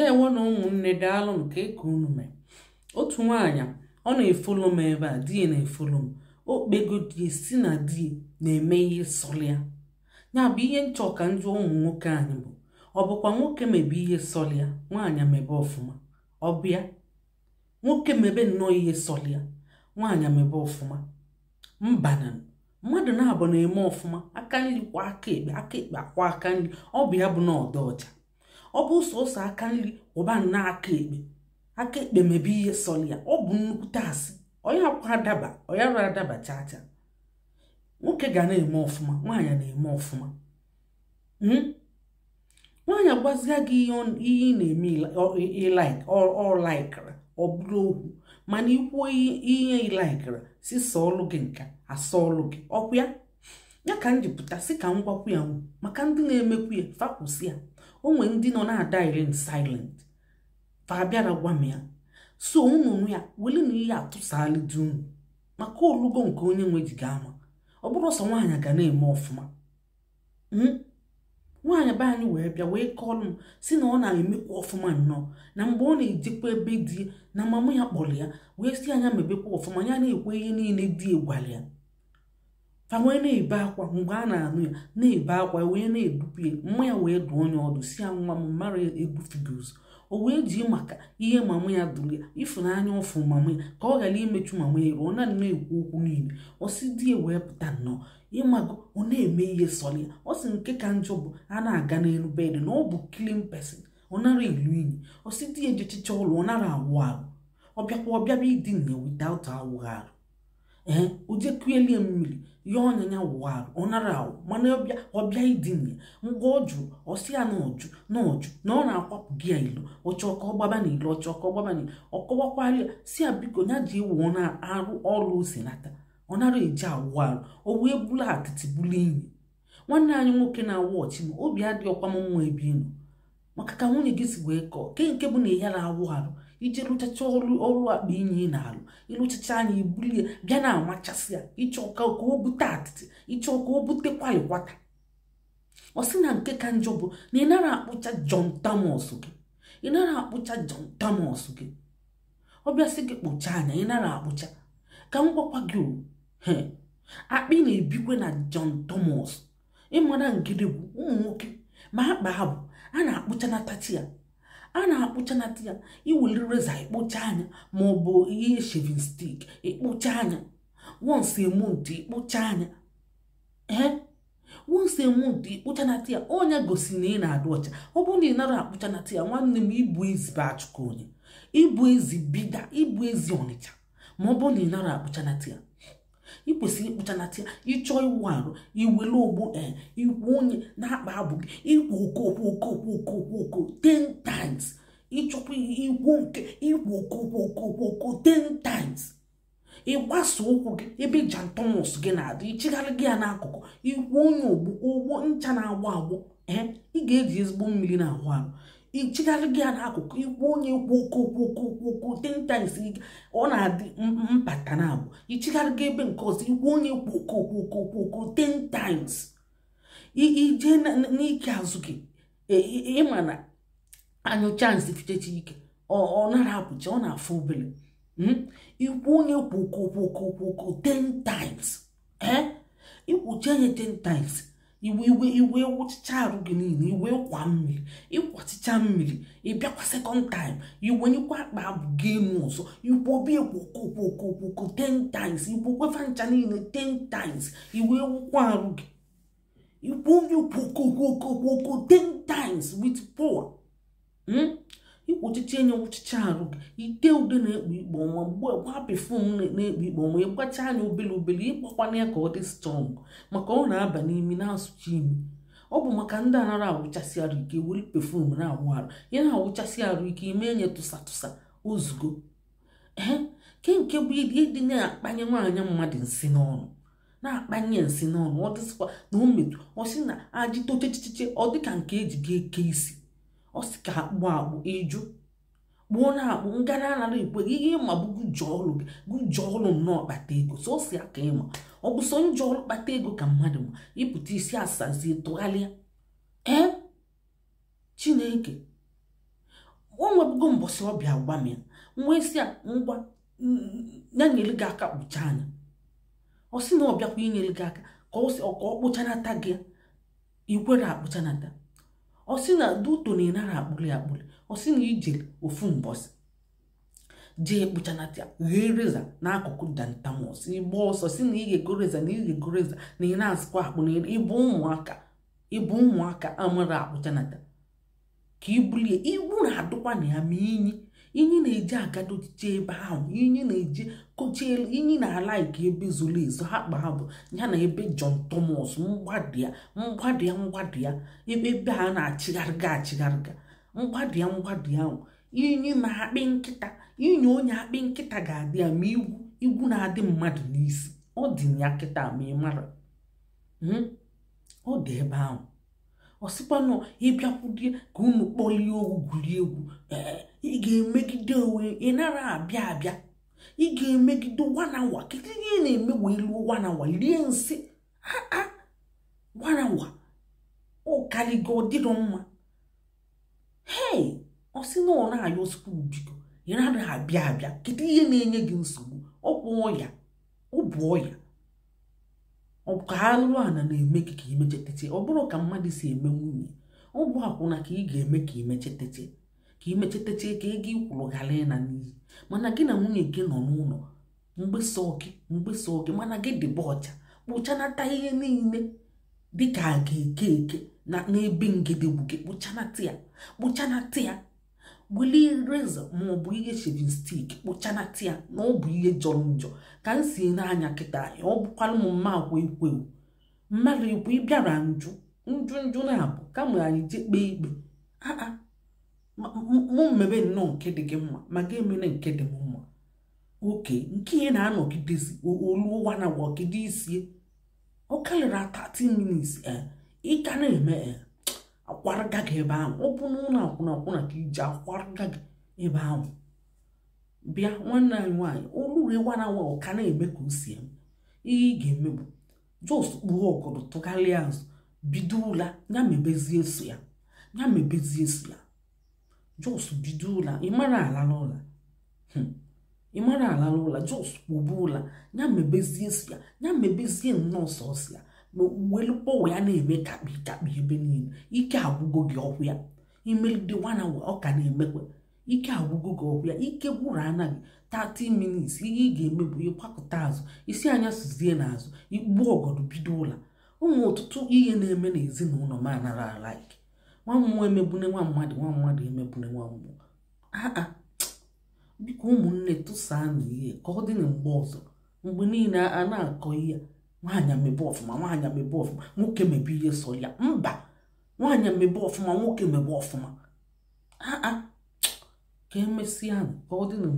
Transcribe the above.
ndeewo na ụmụnne daalụ daalụnụ ka eke unu mee otu nwaanyị ọ na-efolo m ebe a di na-efolo m okpego di si na di na-eme ihe sọlị ya ya ihe nchọ ka njụ ụmụ nwoke anyị bụ ọ bụkwa nwoke mebe ihe sọlị ya nwaanyị mebe ọfụma ọ bịa nwoke mebe nnọọ ihe sọlị ya nwaanyị mebe ọfụma mbana mmadụ na-abụ na-eme ọfụma aka nri kwa aka ekpe aka ekpe akwa aka nri ọ bụ ya bụ na ọdọ ọcha ọ bụ sọsọ aka nri ụba nnọọ aka ekpe aka ekpe mebe ihe sọrọ ya ọ bụ nnukwute asị onye akwa adaba onye arụ adaba nwoke ga na-eme ọfụma nwaanyị na-eme ọfụma hmm? nwaanyị agwazia gị ihe ị na-eme ilaik ọ laikra ọ bụrụ okwu mana ikwuo ihe ilaikra si sọọlụ gị nka asọọlụ gị ọkwa ya ya ka m jipụta si ka m gwakwu ya maka ndị na-emekwu ya fakwụsị ya onwe ndị nọ na-adaire in silent fa bịara gwa m ya so ụmụnụ ya wele na ihe atụsala unu maka olugo nke onye nwe ji ga ama ọ bụrụ ọsọ nwaanyị ga na-eme ọfụma hmm? nwaanyị be anyị wee bịa wee kọlụ m si na ọ na-emekwa ọfụma nnọọ na mgbe ọ na-ejikwa ebe dị na mama ya kpọrọ ya wee si anya mebekwa ọfụma ya na-ekwe ihe niile dị egwara ya wee na-ebe akwa mgbe a na-anụ ya na-ebe akwa e wee na-edupu ya mma ya wee dụọ onye ọdụ si ya nwa m mara egwu figoz o wee ji maka ihe mama ya dụrụ ya ịfụnanya ụfụ mama ya ka ọ ghara imechu mama ya ruo na na-ekwu okwu niile ọ si di ya wee pụta nnọọ ịmago ọ na-eme ihe sọrọ ya ọ sị nke ka njọ bụ a na-aga n'elu bedị na ọ bụ klin pesin ọ nara ilu iyi ọ si di ya jechicha ụlọ ọ nara awụ arụ ọ bịakwa ọ bịaba idina ya without awụghị arụ ee ojekuelie mmiri ya ọnyanya wụwarụ ọ nara awụ mana ọbịa idinye ngwa ọ jụrụ ọsị ya na ọjụ na ọjụ na ọ na-akwapụ gị ya ilo ọchọ ka ọ na ilo ọchọ ka ọ na ya si ya biko ya ji ewu ọ na-arụ ọrụ osinata ọ nara eji awụ arụ o wee bulu atịtị bulu inyi nwanne anyị nwoke na-awụ ọchị ma obi adịghị ọkwa m nwa ebi inu maka ka nwunye gị si wee kọọ ke nke bụ na ya na-awụ arụ iji rụchacha ọrụ akpa inyi na-alụ ịlụchacha anya ibulie bịa na-amachasị ya ịchọ ka o bute atịtị ịchọ ka o bute kwalikwata ọ sị na nke ka njọ bụ na ị nara akpụcha John Thomas gị ị akpụcha jon Thomas gị ọ bịasị gị kpụcha anya ị akpụcha ka m gwakwa gị o akpị na-ebikwe na John Thomas ịmara bụ ụmụ nwoke ma akpa ha bụ a na akpụcha na-atachi ya a na-akpụcha na ya iweli reza ikpụcha anya ma ọ bụ ihe shevin stik ikpocha anya once a month anya ee onye gosi na ị na adụ ọcha ọ bụrụ na ị nara akpụcha na ya nwanne m ịbụ ezi bụ onye ịbụ ezi bida ịbụ ezi ọnịcha ma ọ bụrụ na ị nara akpụcha na tiya ị kwesịrị ịkpụchanata ịchọ ịchọọ iwu arụ iwele ogbo ikwu onye na-akpa abụ gị ikwu okoko okoko okoko 10 times ịchọkwa ikwu nke ikwu okoko okoko 10 times ịgbasa ụkwụ gị ebe jantomus gị na-adị ịchịgharị gị ya n'akụkụ ikwu onye ogbo ụgbọ ncha na-agbọ agbọ ee ị ga-eji ezigbo mmiri na ahụ arụ ichigharị gị ya n'akụkụ ikwu onye kwu okwu ten times ọ na-adị mpata na abụ ichigharị gị ebe nke ọzọ ikwu onye kwu okwu ten times ije n'ike azụ gị ịma na anyụcha nsị fichechi ike ọ nara apụcha ọ na-afụ obere ikwu onye kwu okwu ten times ee ikwuchi anya ten times iwe iwe iwe wụchicha arụ gị niile iwe kwa mmiri ịkwọchicha mmiri ịbịakwa sekọnd taim iwenyekwa akpa abụ gị enu ọzọ igbobi ekwokokwokwokwoko 10 times kwefa ncha niile 10 times iwe wụkwa arụ gị igbobi kwokokwokokwoko 10 times wit power hmm? ikpuchiche enye nwụchicha arụ ite ude na-ekpu ikpo ọnwa mgbe gwa pefum na-ekpu ikpo ọnwa ịgbacha anya obele obele ịkpakwana ya ka ọ dị strọng maka ọ na-aba n'imi na-asụcha imi ọ bụ maka ndị anara awụchasị arụ ike were pefum na-awụ arụ ya na-awụchasị arụ ike ime enye tụsa tụsa ozugbo ee ke nke bụ ịdị na-akpanye nwaanyị mmadụ nsị n'ọnụ na-akpanye nsị n'ọnụ ọ dịsịkwa na o ọ sị na ajị tochechiche ọ dịka nke eji ga-eke isi ọ sị ka akpụ akpụ ịjụ kpụọ na akpụ ngara anara ekwe gị ihe ịma bụ gụjọ ọlụ gị gụjọ ọlụ nnọọ kpata ego so o si aka ịma ọ bụ so njọ kpata ego ka mmadụ ma ịpụta isi asazie tụgharịa ee chineke o nwebugo mbọsị ọbịa gwa m ya nwa isi a ngwa ya gị aka kpụcha anya ọ sị na ọ bịakwa inyere gị aka ka ọ kpụchanata gị ikwere akpụchanata ọ sị na duto na ịnara akpụli akpụli osi na ije ofu mbọsị jee kpụchanata ghee reza n'akụkụ dantamus ịgba ọsọ si na ighego reza na ighego reza na ị na-azụkwa akpụ na ịbụ ụmụaka ịbụ ụmụaka amara akpụchanata ka ibulie ibu na-adụkwa na ya ma inyi inyi na-eji agadoje ebe ahụ inyi na-eji kochie inyi na-ala nke ebe zoro ezo ha kpa ha bụ ya na ebe jon Thomas mgbadụ ya mgbadụ ebe ebe a na-achịgharịga achịgharịga mgbadụ ya ahụ inyi na-akpị nkịta inyi onye akpị nkịta ga-adị ya ma igwu igwu na-adị mmadụ n'isi ọ dị ya kịta ma ị mara hmm? ọ dị ebe ahụ ọsịkwanụ ịbịakwudie ka unu kpọlie owu gwurie egwu ị ga-emegide onwe ị nara abịa abịa ị ga-emegide wanawa kedu ihe na-eme wee luo wanawa rie nsị aa wanawa ụkarigo dịrọ mma hei ọsị na ọ na-ayọ sukuu biko ị nara abịa abịa kedu ihe na-enye gị nsogbu ọ bụ ọya ọ bụ ọya ka ha ana na-eme gị ka imechetete ọ bụrụ ka mmadụ si eme nwunye ọ bụ akwụna ka ị ga-eme ka imechetete ka imechetete ka ego ikwuru ghara ịna n'iyi mana gị na nwunye gị nọ n'ụlọ mgbesa oke mgbesa oke mana gị dịba ọcha kpụchanata ihe niile dịka a ga-eke eke na ebe ngedegbu gị kpụchanata ya kpụchanata ya gbulie reza maọbụ ihe shevin stik kpụchanata tia na ọ bụ ihe jọrọ njọ ka m si n'anya kịta anyị ọ bụkwala m mma akwụ ekwewu mmadụ ekwe ịbịara njụ njụ njụ na-abụ kama anyị jee kpee ikpe aa mụ mmebe nnọọ nke dị gị mma ma ga-emere nke dị m mma oke nke ihe na-anọgidezi olu ụwa na wọgide isie ọ karịrị 30 minutes ịga eh, na-eme eh. akwaraga gị ebe ahụ ọ bụ n'ụlọ akwụna akwụna ka iji akwaraga gị ebe ahụ bịa nwanne anyị nwaanyị oluriwara nwa ọka na-eme ka o si eme ihe ị ga-eme bụ jos kpuo ọkụrụ tụgharịa azụ bido ụla ya mebezie so ya ya mebezie so ya jos bido ụla ịmara alala ụla hmm. ịmara alala ụla jos kpụbu ụla ya mebezie so ya ya mebezie nnọọ sọsọ ya welụkpọwa ya na-eme kakpi kakpi ebe niile ike agwụgo gị ọhụ ya imelide nwana ọ ka na-emekwa ike agwụgo gị ọhụ ya ike gwụrụ anaghị 30 minutes ihe ị ga-eme bụ azụ isi anya na n'azụ igbuo ọgọdụ bido ụla ụmụ ọtụtụ ihe na-eme n'ezinụlọ m anara alaik nwa mmụọ emegbune nwa mmadụ nwa mmadụ emegbune nwa mmụọ aa biko ụmụnne tụsaa na ihe ka ọ dị na mgbe ọzọ mgbe niile a na-akọ ihe nwaanyị amebe ọfụma nwaanyị amebe ọfụma nwoke mebe ihe sọ ya mba nwaanyị amebe ọfụma nwoke mebe ọfụma aa ah, ah. ka emesịa ka ọ dị na